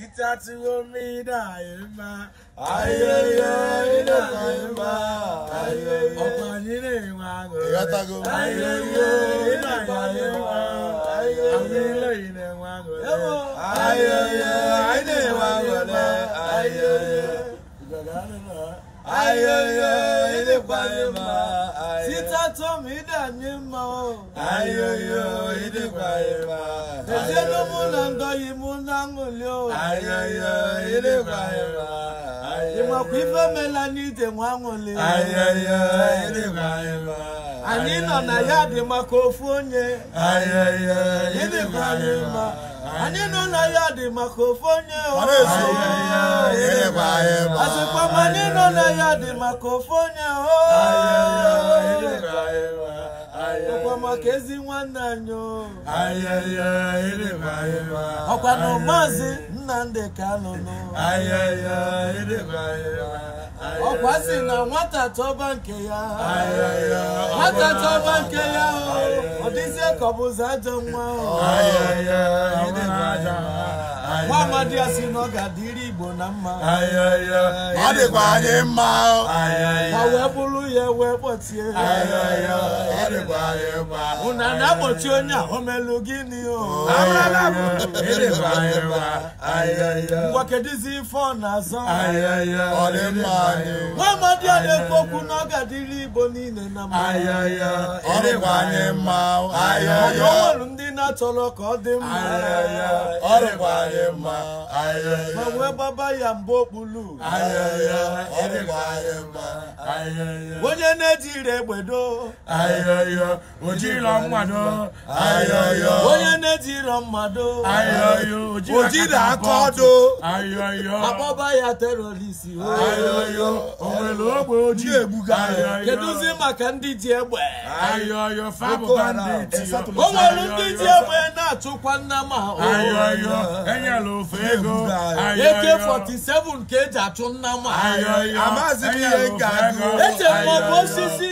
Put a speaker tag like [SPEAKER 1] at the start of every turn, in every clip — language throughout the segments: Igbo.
[SPEAKER 1] Itatsuomida ima
[SPEAKER 2] ayẹyẹ ina ima
[SPEAKER 1] ayẹyẹ ọ̀pọ̀ nínú ìwà àgọ̀ ayẹyẹ ina ima ayẹyẹ ilé ìnà ìwà àgọ̀ ayẹyẹ
[SPEAKER 3] ina ìwà àgọ̀ ayẹyẹ. ayoyo ịdịkwanye mma sita tom ịdanye mma o ayoyo ịdịkwanye mma ejenụ mụ na ndọghị mụ na ṅụli o ayoyo ịdịkwanye mma ịmakwa ife mela nwa ṅụli ayoyo ịdịkwanye ma anyị nọ na ya dị maka ofu onye ayoyo ịdịkwanye anyị nọ na ya dị maka ofu onye asịkwa ma anyị nọ na ya dị maka ofu onye ọkwa maka ezi nwanne anyị ọkwa na maazị Nnamdi Kanu
[SPEAKER 2] ọkwa na
[SPEAKER 3] nwata tọba nke ya nwata tọba nke ya ọ dịzie ka ọ ụzọ ajọ nwa ahụ nwa amadi ya si na ọ Igbo na mma ọ dịkwa anyị mma ma wee bụrụ ya wee kpọtie unu na-akpọchi onye a omelu gịnị gị ngwa kedụzi ife ọ na-azọ nwa
[SPEAKER 1] amadi
[SPEAKER 2] ya na-ekwu okwu
[SPEAKER 3] na ọ ga-adịrị Igbo niile na mma
[SPEAKER 2] ọ dịkwa anyị mma
[SPEAKER 3] mana ndị na-achọrọ ka ọ dị mma ọ dịkwa anyị mma ma wee gbaba ya okpulu onye na eji egbedo ojiro mmado onye na-etiro mmado ojiri aka ọdụ akpọba ya terorist onwere ogbe ojii egbuga kedụzi maka ndị ji egbe o nwere ndị ji egbe na-atụkwa nnama eke 47 ka eji achụ nna m echere m ọ bụ osisi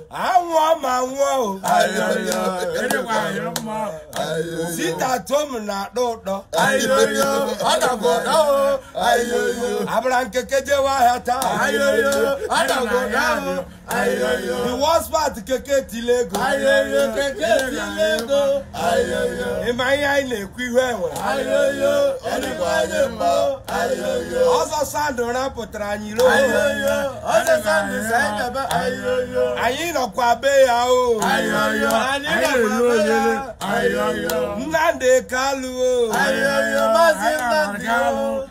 [SPEAKER 3] àwọn ọmọ àwọn o. ayọyọ eréwà ayọ mọ. síta tóòmù náà lóòótọ́. ayọyọ ọ̀dàgbọ̀dá o. ayọyọ. abraham kékeré wá yàtá. ayọyọ ọ̀dàgbọ̀dá o. ayọyọ. the worst part kékeré ti lego. ayọyọ kékeré ti lego. ayọyọ. ìmọ̀ ayé ayé lè kú ihu ẹ̀wẹ̀. ayọyọ eréwà ayọ mọ. ayọyọ. ọsọ sáàdùn rẹ pụtara anyị lóòótọ́. ayọyọ ọsọ sáàdùn sẹ́yìn dàbẹ́. ayọyọ. anyị nọ. dagakwa abe ya o ayọyọ anyị ga-elu ayo, ayọyọ Nnamdi Kanu o ayọyọ Maazị Nnamdi o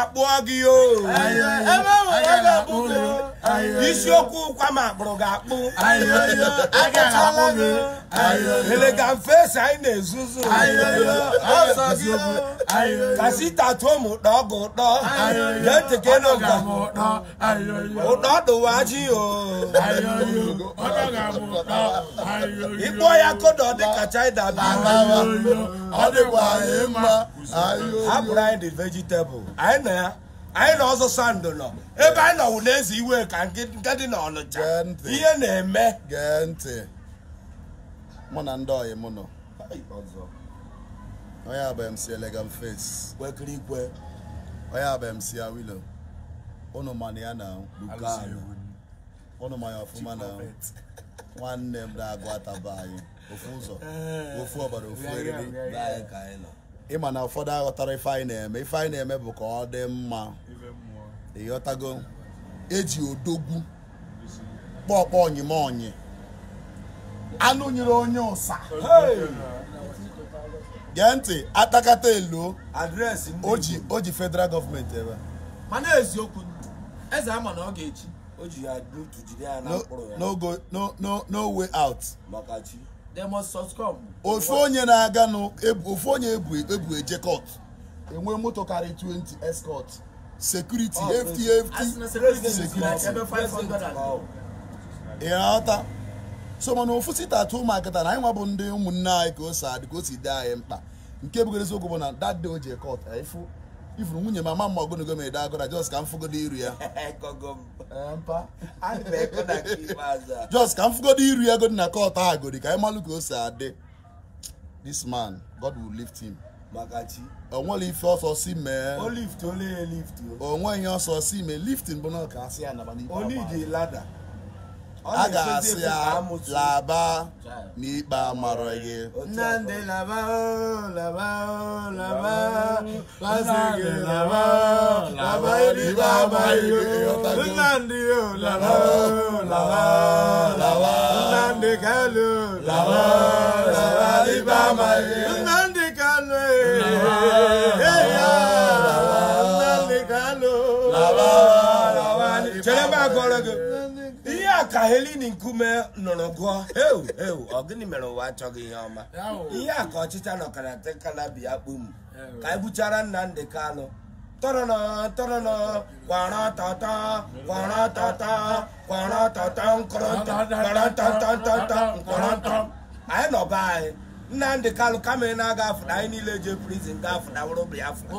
[SPEAKER 3] akpụọ gị isiokwu ụkwa ma akpụrụ gị akpụ agachala gị elegamfe anyị na-ezuzu kasi tatuo m ụtọ ọgụ ụtọ ga-etekere ụtọ ụtọ dụwa ji ịkpọ ya kodo dịka china bi ọ dịkwa anyị mma a anyị dị vegetable anyị nna ya anyị
[SPEAKER 2] na ọzọ sandụ nọ ebe anyị nọwụ na iwe ka nke dị n'ọnụcha ihe na-eme gee ntị mụ na ndị ọyị m nọ onye abụ MC Elegant Face kwekiri ikwe onye abụ MC Awilo ụnụ mana ya na Lukan ụnụ ma ya ọfụma na nwanne m na-agụ ataba anyị ofu ụzọ eh. ofu ọbara ofu eriri anyị ka anyị nọ ịma na ụfọdụ aghọtara ife anyị na-eme ife anyị na-eme bụ ka ọ dị mma ịghọtago eji odogwu kpọọkpọọ onyime onyi anụ nyere onye ụsa gee ntị atakata elu o ji federal gọọmenti ebe mana eziokwu eze ama na ọ ga eji
[SPEAKER 3] o ji ya
[SPEAKER 2] way out they must succumb. ofu onye na-aga ofu onye ebu eje ejekọt enwe moto karịa 20 escort security oh, ftft security ịghọta so mana ofu site atụ ụmụakịta na anyị nwa bụ ndị ụmụnne anyị ka o si adị ka o si dị anyị mkpa nke bụgoro eziokwu bụ na that day o ji jekọt ifu ifuru nwunye mama mma ogologo m ede agụra jos ka m fụgodo iru ya jos ka m fụgodo iru ya godi na kot agodi ka anyị ka o si adị this man god will lift him onwere ife ọsọ si mee onwe ihe ọsọ si mee liftin bụ na ọka asị ya naba a ga-asị ya laba n'ikpe amara gị nnamdị laba
[SPEAKER 3] laba laba nnamdị laba laba n'ikpe amaghị nnamdị laba laba laba nnamdị kalu laba laba n'ikpe amaghị nnamdị kalu kalu
[SPEAKER 2] eh. laba laba chere m akọrọ
[SPEAKER 3] gị ya ka helini nkume nụrụ gụọ heu heu ọ gịnị mere ụwa achọghị ihe ọma ihe a ka ọchịcha nọkara tekala biya kpum ka e gbuchara Nnamdi Kanụ tọrọnọ tọrọnọ kwara tata kwara tata kwara tata nkọrọtọtọtọtọ nkọrọtọ anyị nọ be anyị Nnamdi Kanụ kama ị na-aga afụna anyị niile je prizin ga afụna wụrụ Biafra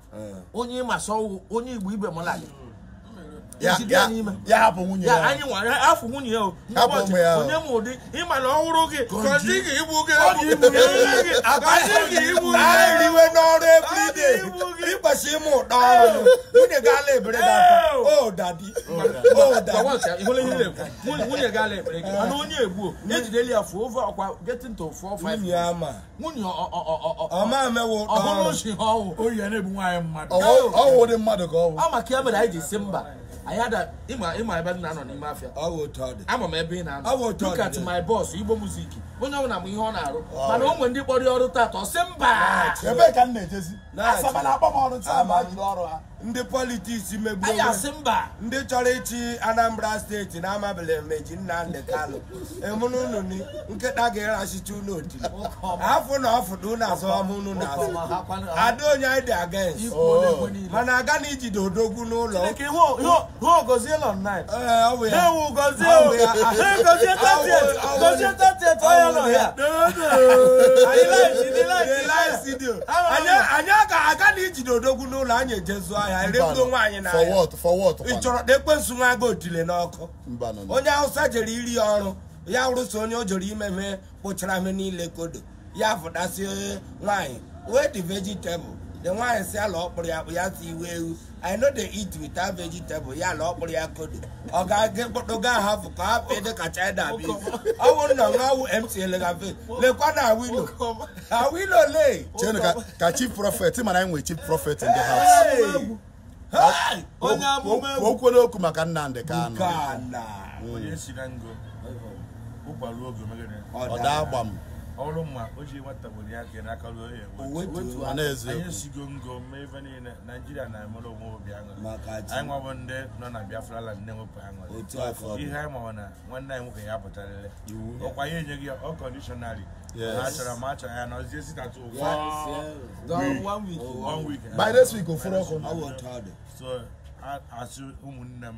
[SPEAKER 3] onye ịma sọ onye igbo ibe m lali ya hapụ nwunye ya anyị nwere afọ nwunye ya hapụ ya onye ma ụdị ịmana ọhụrụ gị kọzi gị ama
[SPEAKER 1] nwunye ọma amewo ọhụrụ
[SPEAKER 3] si ịma ebe na nọ n'ime afịa ama m ebe ị na-anọ look at my boss igbo muziki onye ọbụla m ihe ọ na-arụ mana o ndị kpọrọ ọrụ taata ọ sị
[SPEAKER 2] mba
[SPEAKER 3] ndị politiks megburu ndị chọrọ ịchị Anambra steeti na amabela meji Nnamdi Kanu emunu nkịta ga-erachicha unu otiri afọ na ọfụdụ unu azọm unu na azụ ada onye anyị dị against oh. mana aga na ijide odogwu n'ụlọ ee anyị aga na ijide odogwu n'ụlọ anyị ejezu ahịa erego nwaanyị na ị chọrọ na ekwensu nwa aga otile n'ọkụ onye hausa jere iri ya ọrụ ya rụso onye o jere imeme kpụchara me niile kodo ya fụdasị nwaanyị wee dị vegetable the nwaanyị si ala ọkpụrụ ya akpụ ya si iwe ewu i no dey eat without vegetable ya ala ọkpụrụ ya kodo ọ ga-aga mkpọtụga ahafụ ka ha pee dị ka china bi ọ
[SPEAKER 2] bụrụ na nwa awụ mtl gafe lekwa na awilo awilo le chenu ka chi prophet mana anyị nwere chief prophet in the house o kwere okwu maka ka Kanu
[SPEAKER 1] ọ daa agba m ọrụ ma o ji nwata gbori ya ka n'aka ruo ya anyị esigo ngo mee ife niile naijiria na-emere onwe obi aṅụrị anyị nwabụ ndị nọ na biafra land na-enwepụ aṅụrị ihe anyị mawa na nwanne anyị nwoke ya pụtarịrị ọkwa ya enyeghị ya ọ kọndishọnarị ha chọrọ ma a chọrọ ya nọzie sitatu oh, one week by this week ofuru ọkụ so asị ụmụnne m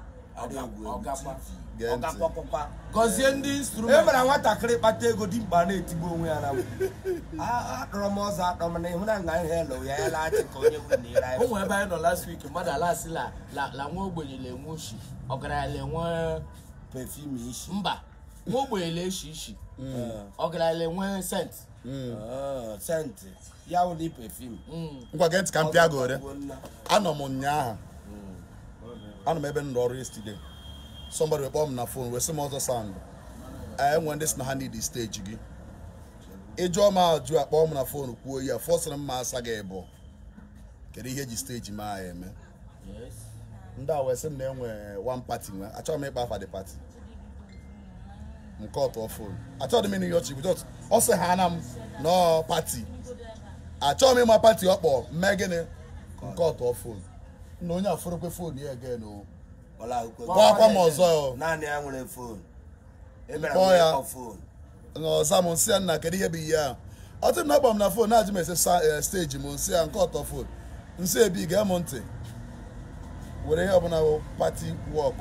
[SPEAKER 3] gọzie ndị instrument e mere nwatakịrị kpata ego dị mkpa na-etigbu onwe ya na akpọrọ m ọzọ akpọ m na ịhụ na nga ihe lụ ya ya laghachi ka onye nwere na ire ụmụ ebe anyị nọ last week mmadụ ala alasị la nwa ogbenye lenwe oshi ọgaranya lenwe pefum ishi mba nwa ogbenye leshi ishi mm. ọgaranya lenwe sent mm. oh, sent ya wụlị pefum mm. ngwa gentị ka m pịa gore
[SPEAKER 2] anọ m ụnyaahụ anọ m ebe m ọrụ ọrụ yesterday somebody kpọọ m na phone wee sị m ọzọ sound e, enwe ndị si na ha need stage gị ịjụọ m ajụ a kpọọ m na phone kwuo ya fọsịrị m ma asa gị bụ kedu ihe eji steji ma ya eme ndị a wee sị m na enwe one party nwe achọghị m ịkpa afa dị party nke ọtọ phone achọghị m ịnụ ihe ọchị bụ ọ sị ha na m nọọ party achọghị m ịma party ọ kpọ mee gịnị nke ọtọ fon. na onye afọrọkwe fon ya ege again Gwa akwa m ọzọ e kpọọ ya n'ọza m nsị ya nna kedu ihe bụ ihe a ọtụ na agba m na fon na-ajụ m ese eh, steji m nsị ya nke ọtọ fon nsị ebi gee m ntị were ihe ọbụla bụ pati wọk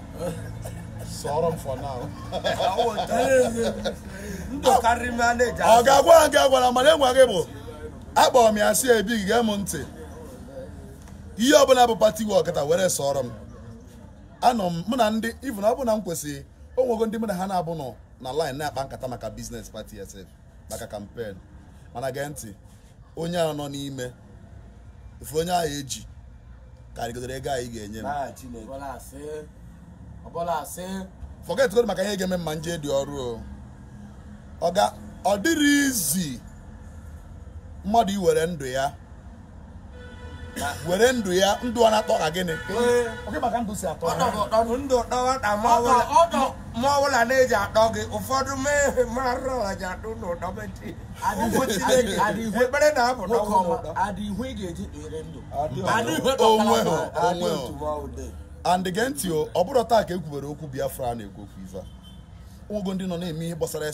[SPEAKER 2] sọrọ m for now ọ ga-agwa gị agwara mana enwe gị bụ akpọrọ m ya si ebi gee m ntị ihe ọbụla bụ pati we ọkata were sọrọ m anọ m mụ na ndị na ọ bụ na m kwesịrị o nwego ndị mụ na ha na-abụ nọ na line na-akpa nkata maka biznes pati sf maka kampen mana gee ntị onye a nọ n'ime efu onye ahụ eji karịgodoro ego anyị ga-enye m forget maka ihe ga-eme mma nje dị ọrụ ọ dịrị izi mmadụ iwere ndụ ya were ndụ ya ndụ ọ na-atọ ka gịnị
[SPEAKER 3] ma bụla na-eji atọ gị ụfọdụ mee ihe marụ ji atụ n'ụdọ ekpere na-abụ
[SPEAKER 2] and ntị ọ bụrụ taa ka e kwubere okwu Biafra na-ekwu okwu ife ụgụ ndị nọ na-eme ihe gbasara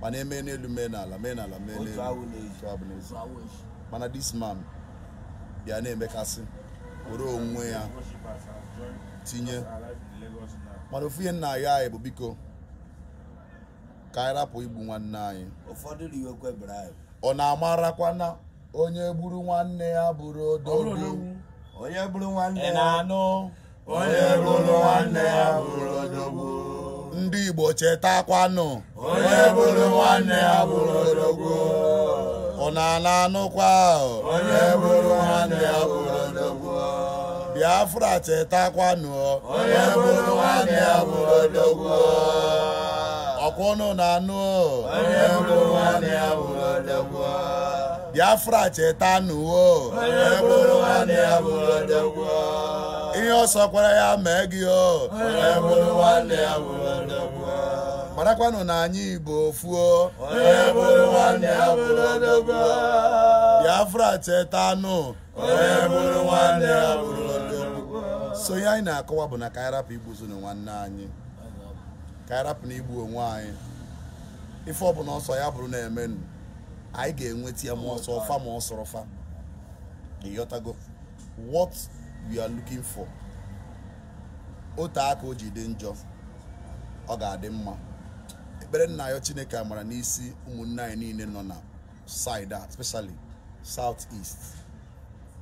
[SPEAKER 2] mana eme n'elu mee n'ala mee n'ala mee n'elu mana dis man bịa na-emekasị were onwe ya tinye mana ofu ihe nna ya anyị bụ biko ka anyị rapụ igbu nwanne anyị ọ na-amarakwa na onye gburu nwanne ya bụrụ ododu onye gburu nwanne ya anụ onye ndị Igbo chetakwanụ onye bụrụ nwanne ya bụrụ odogwu ọ na-ana anụkwa onye bụrụ nwanne ya bụrụ odogwu Biafra chetakwanụ onye bụrụ nwanne ya bụrụ odogwu ọkwụnụ na-anụ onye bụrụ nwanne ya bụrụ odogwu Biafra chetanụwo onye bụrụ nwanne ya bụrụ odogwu ihe ọ sọkwara ya mee gị o onye bụrụ nwanne ya bụrụ marakwanụ na anyị igbo fuo biafra chetanụ so ihe anyị na-akọwa bụ na ka anyị rapụ igbuzunu nwanne anyị ka na igbu onwe anyị ife ọbụla ọsọ ya bụrụ na-emenụ anyị ga-enweta ya ma ọsọ ọfa ma ọsọrọ fa ịghọtago what we are looking for ote aka o ji dị njọ ọ ga-adị mma ekpere nna ya chineke amara n'isi ụmụnne anyị niile nọ na saịdị a especially south east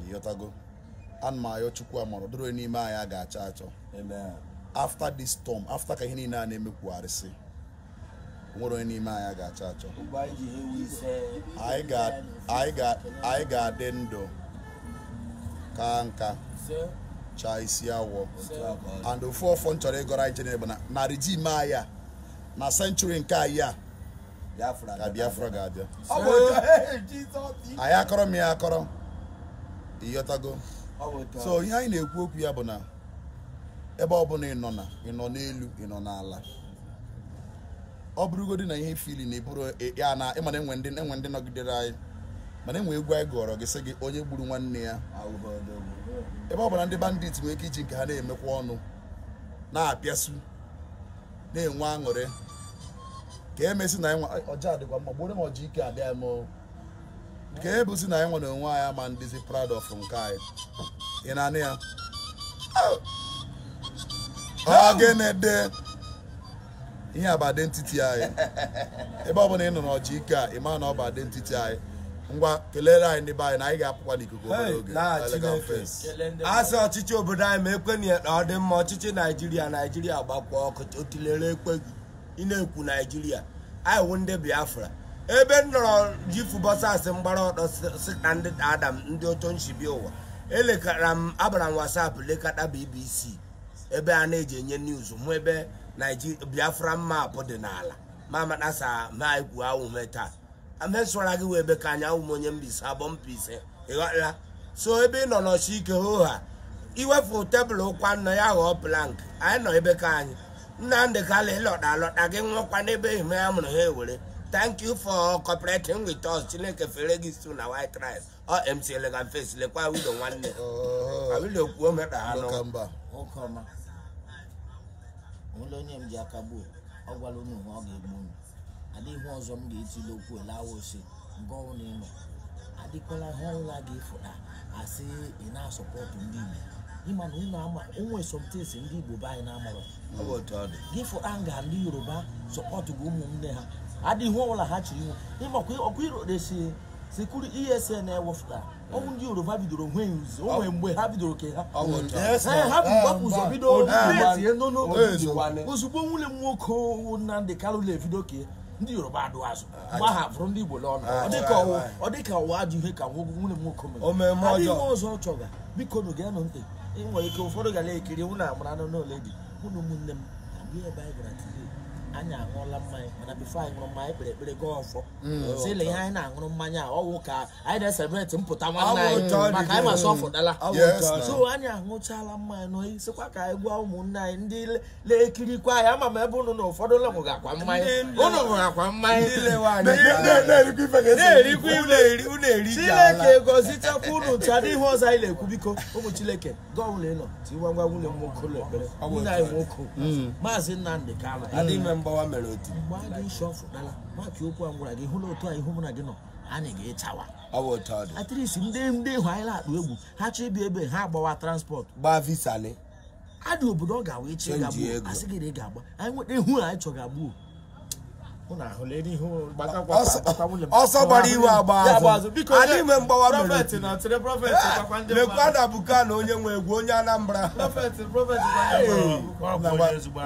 [SPEAKER 2] ịghọtago ana m ayọ chukwu amara doro n'ime anyị a ga-achọ achọ Afta this stọm, afta ka ihe niile a na-emekwugharịsị nwere onye n'ime anyị a ga-achọ achọ anyị ga-adị ndụ ka nka chaa isi awọ and ofu ọfọ m chọrọ ịgọrọ anyị chenere bụ narị ji ime anyị a na senchuri nke anyị a ka Biafra ga-abịa
[SPEAKER 3] anyị akọrọ
[SPEAKER 2] m ya akọrọ ịyọtago so ihe anyị na-ekwu okwu ya bụ na ebe ọbụla ị nọ na ị nọ n'elu ị nọ n'ala ọ bụrụgodị na ihe fili na eburu ya na ịmana enwe ndị enwe ndị nọgidere anyị mana enwe egwu anyị gụọrọ gị sị gị onye gburu nwanne ya ebe ọ bụla ndị bandit nwere ike iji nke ha na-emekwa ọnụ na-apịasu na-enwe aṅụrị ka emesi na ọjị adịkwa mma gboro m ọjị ike abịa m ka ebusi na ịnwere nwa onwe anyị ama ndịzi proud of nke anyị ị na oh! ọ ya oh! ogene ihe a bụ identity anyị ebe ọ bụla ị nọ n'ọjị ike a ị ma na ọ bụ ntiti anyị ngwa kelere anyị n'ebe anyị na anyị ga-apụkwa n'ikuku oge
[SPEAKER 3] asị ọchịchị obodo anyị ma ekwenye na ọ dị mma ọchịchị naijiria naijiria gbakwa ọkụ otilere ekweghị ị ekwu naijiria anyị wụ ndị biafra ebe m nọrọ ji fubọsasị mgbara ọtọ si ndị adam ndị oto ụwa elekara m abara m wasapụ lekata bbc ebe a na-eji enye niuz mụ ebe biafra mma dị n'ala ma amatasa ma amesụra gị wee be ka anyanwụ m onye mbise abọ mpise ịghọla so ebe ị nọ n'ọchị ike hoha iwefu tebụl ụkwa nna ya ghọọ plank anyị nọ ebe ka anyị nna nnamdị kala ịlọta alọta gị nwekwa n'ebe ime ya mụrụ ha ewere thank you for cooperating with us chineke fere gị so na white rice ọ mc elegan face lekwa wido nwanne awido
[SPEAKER 2] kwuo mekpa ha nụ
[SPEAKER 3] onye m ji aka gbuo ọ gwala unu ọ ga-egbu adịghị ihe ọzọ m ga-etili okwu elawa ose nke ọnwụ na ịnọ adịkwala ihe ọnwụla gị fụta asị ị na-asọpọtụ ndị Igbo ịma na ụnụ ama onwe somtesi ndị Igbo be anyị na-amarọ gị fụta nga ndị Yoruba sọpọtụgo ụmụnne ha adịghị ihe ọbụla ha chiri iwu ịmakwa ọkụ iroresi sekuru esn ewefụta ọnwụ ndị yoruba bidoro nwee nzi onwe mgbe ha bidoro ke ha ha bụ gbapụ ụzọ bido tie ozugbo nwunye m nwoke Nnamdi Kanu ebido ke ndị yoruba adụ azụ ah, mgbe aha fụrụ ndị igbo ọnụ ah, ọ ka ụwa ah, ajụ ihe ka nwunye m nwoke mere ọzọ ọ chọga biko nụ ga-anụ ntị nwere ike ụfọdụ ga ekiri nwụ na amara anụ n'ole dị na ụmụnne m abụghị ebe anyị gara anyị aṅụọla mmanya mana bifo anyị ṅụrụ mmanya ekpere ekpere gaa ọfọ si mm. ile ihe anyị na-aṅụrụ mmanya ọwụ ka anyị na-esebreti mpụta nwanne anyị maka anyị masị ọfụdala so anyị aṅụchala mmanya nọ sịkwa ka anyị gwa ụmụnne anyị ndị na-ekirikwa ama m ebe ụnụ na ụfọdụ ụlọ akwa mmanya ụnụ akwa mmanya chineke ụnụ ọzọ anyị na-ekwu biko ụmụ chileke gọọmụlụ ịnọ tiwa ngwa nwunye nwoke nwoke mm. mgbawa mere otu mgbe a gị isi maka okwu a gwara gị hụla otu a mụ na gị nọ a ga-echawa ọ bụ ndị ndị anyị na-akpa egwu ha chọọ ebe ha agbawa transport gbaa a dị obodo ọ ga agba anyị nweta ihu anyị chọrọ agbuo ọsọ gbara iwe agba azụ anyị nwe mgbawa lekwa na buka eh, na onye nwe egwu onye Anambra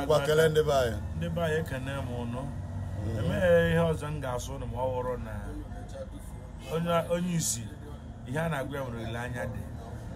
[SPEAKER 1] gwakele m ụnụ ihe ọzọ m ga-asụ ma ọ na onye isi ihe a na-agwa ya nwere dị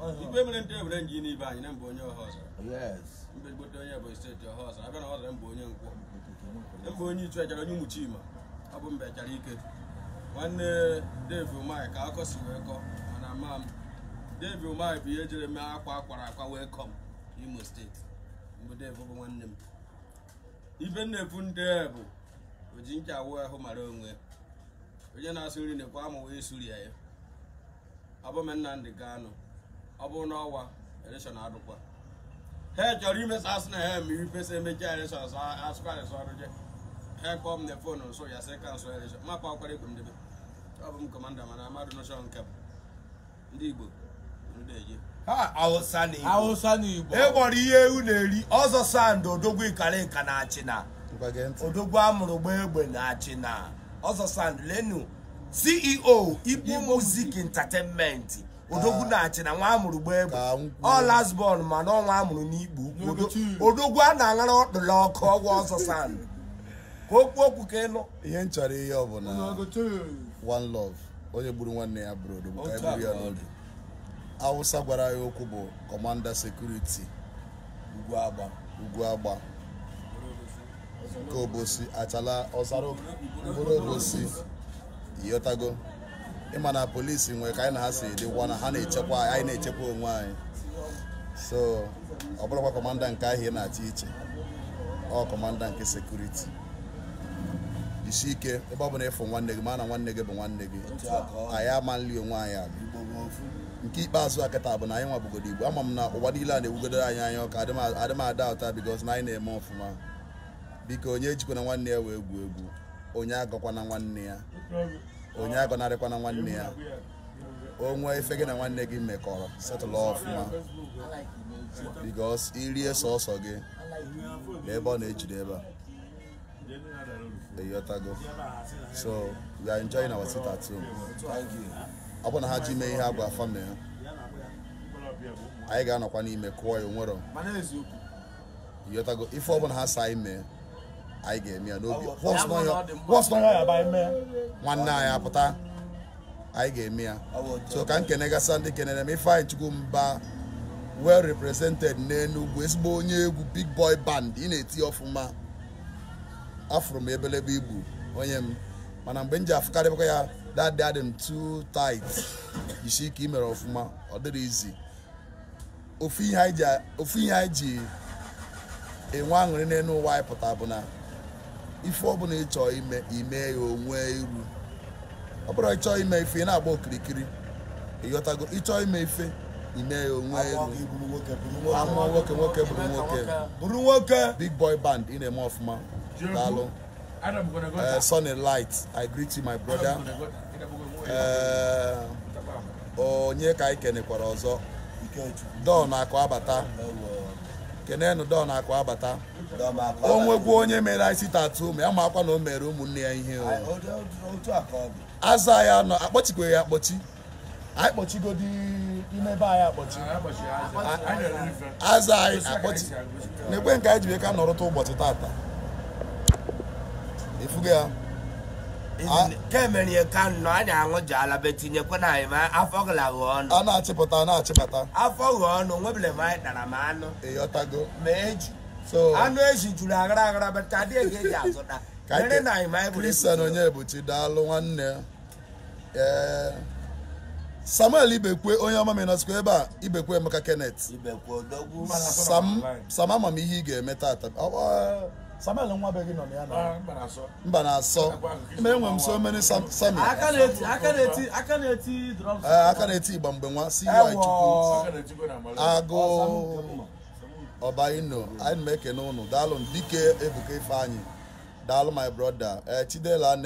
[SPEAKER 3] ikpe mere ndị ebere nji n'ibe anyị na mbụ onye ọha ọzọ mbe gbote onye bụ steeti ọha ọzọ abịa na ọzọ mbụ onye nkwọ mbụ onye ichu ejere onye nwuchi ima ọ bụ mba echara ike nwanne devi umai ka akọ si wee kọ mana ma m devi umai bụ ihe jere mee akwa akwara akwa wee kọ m imo steeti mbụ devi bụ nwanne m ibe nnepu ndị bụ oji ncha awụ ahụ mara onwe onye na-asụ nri na-ekwe wee isuri ya ya ọ nna m ga-anụ. ọ bụrụ n'ọnwa elekshọn adụkwa ha chọrọ imesa asị na ha eme ifesa emecha elekshọn asụkwa res ọrụ je ha kpọọ m na fon nso ya sị ka nso elekshọn mapa akwara ego ndebe, ọ bụ m kọmanda mana amadụ nọchọn nke m ndị igbo ndị ha awụsa na igbo awụsa na igbo e gbọrọ ihe ewu na-eri ọzọ sandụ odogwu ikara nka na-achị na odogwu amụrụ gba egbe na Achịna, na ọzọ sandụ lenu ceo igbo music entertainment odogwu na-achị na nwa amụrụ gbaa egbe ọ ma mana ọnwa amụrụ n'ikpu odogwu a na-aṅara ọkpụrụ ọkụ ọgwụ
[SPEAKER 2] ọzọ sand ka okwu okwu ka ịnụ ihe nchọrọ ihe ọ bụla one love onye gburu nwanne ya bụrụ odogwu ka egburu ya n'oge awụsa gwara ya okwu bụ kọmanda sekuriti ugwu agba nke obosi achala ọzara mkpụrụ obosi ịghọtago ịma na polisi nwere ka anyị na ha si dịkwa na ha na-echekwa anyị na-echekwa onwe anyị so ọ bụrụkwa kọmanda nke ahịa na-achị iche ọ kọmanda nke sekuriti isi ike ebe ọ bụla ịfụ nwanne gị ma na nwanne gị bụ nwanne gị anyị ama nli onwe anyị abụ nke ikpeazụ a kịta bụ na anyị nwabugodo igbo ama m na ụwa niile a na-ewugodoro anyị anya ọka adị m ada ụta na anyị na-eme ọfụma biko onye ejikwana nwanne ya wee egwu egwu onye agakwana nwanne ya onye na nwanne ya onwe ife gị na nwanne gị mekọrọ setụlụ ọfụma bikos irie sọsọ gị na ebe ọ na-ejide ebe a eyotago so we are enjoying our sit ọ bụ na ha ji mee ihe agwa afa mee anyị ga-anọkwa n'ime kụọ ya onwero yotago ife ọbụla ha sa mee anyị ga-eme ya n'obi nwanne anyị apụta anyị ga-eme ya so ka m kene gasa ndị kenere m Ifeanyi Chukwumba well represented n'enugwu ezigbo onye egwu big boy band ị na-eti ọfụma afụrụ m ebelebe igbu onye m mana mgbe m ji afụkarịkwa ya dadị adị m too tight isi ike imere ọfụma ọ dịrị izi ofu ihe anyị ji enwe aṅụrị n'elu ụwa anyị pụta bụ na ife ọ bụla ịchọ ime ime ya onwe iru ọ bụrụ ịchọ ime ife ị na-agba okirikiri ịghọtago ịchọ ime ife ime ya onwe iru amụọ nwoke nwoke bụrụ nwoke bụrụ nwoke big boy band ị na-eme ọfụma daalụ eh, sunny light i greet you my brother eh, onye ka anyị kenekwara ọzọ don akụ abata kenenu don akụ abata onwekwu onye mere isi tatu ma ya makwa akwa na o mere ụmụnne ya ihe aza ya nọ akpọchikwe ya akpọchi anyị kpọchigodi imebe anyị akpọchi
[SPEAKER 1] aza anyị akpọchi
[SPEAKER 2] na-ekwe nke anyị ji wee ka nọrụta ụbọchị tata efugo ya kemere ihe ka
[SPEAKER 3] nọ anyị aṅụji ala be tinyekwana anyị ma afọ gụla ghọọ ọnụ a na-achịpụta na-achịpụta afọ
[SPEAKER 2] ghọọ ọnụ nwebile ma anyị tara ma anụ ịghọtago ma eju anụ eji juru aghara aghara bata adị ego eji azụta mere anyị ma anyị kristian onye ebuchi daalụ nwanne ee samuel ibekwe onye ọma menasịkwa ebe a ibekwe emeka kenneth sam ihe ị ga-eme tata Samuel nwa be nọ na ya na ah, mba na-asọ ma enwe m so many Samuel eh, aka na-eti igba mgbe nwa si chukwu agụ ọba ino anyị na-ekene ụnụ daalụ dike ebuka ifeanyị daalụ my brother eh, chidela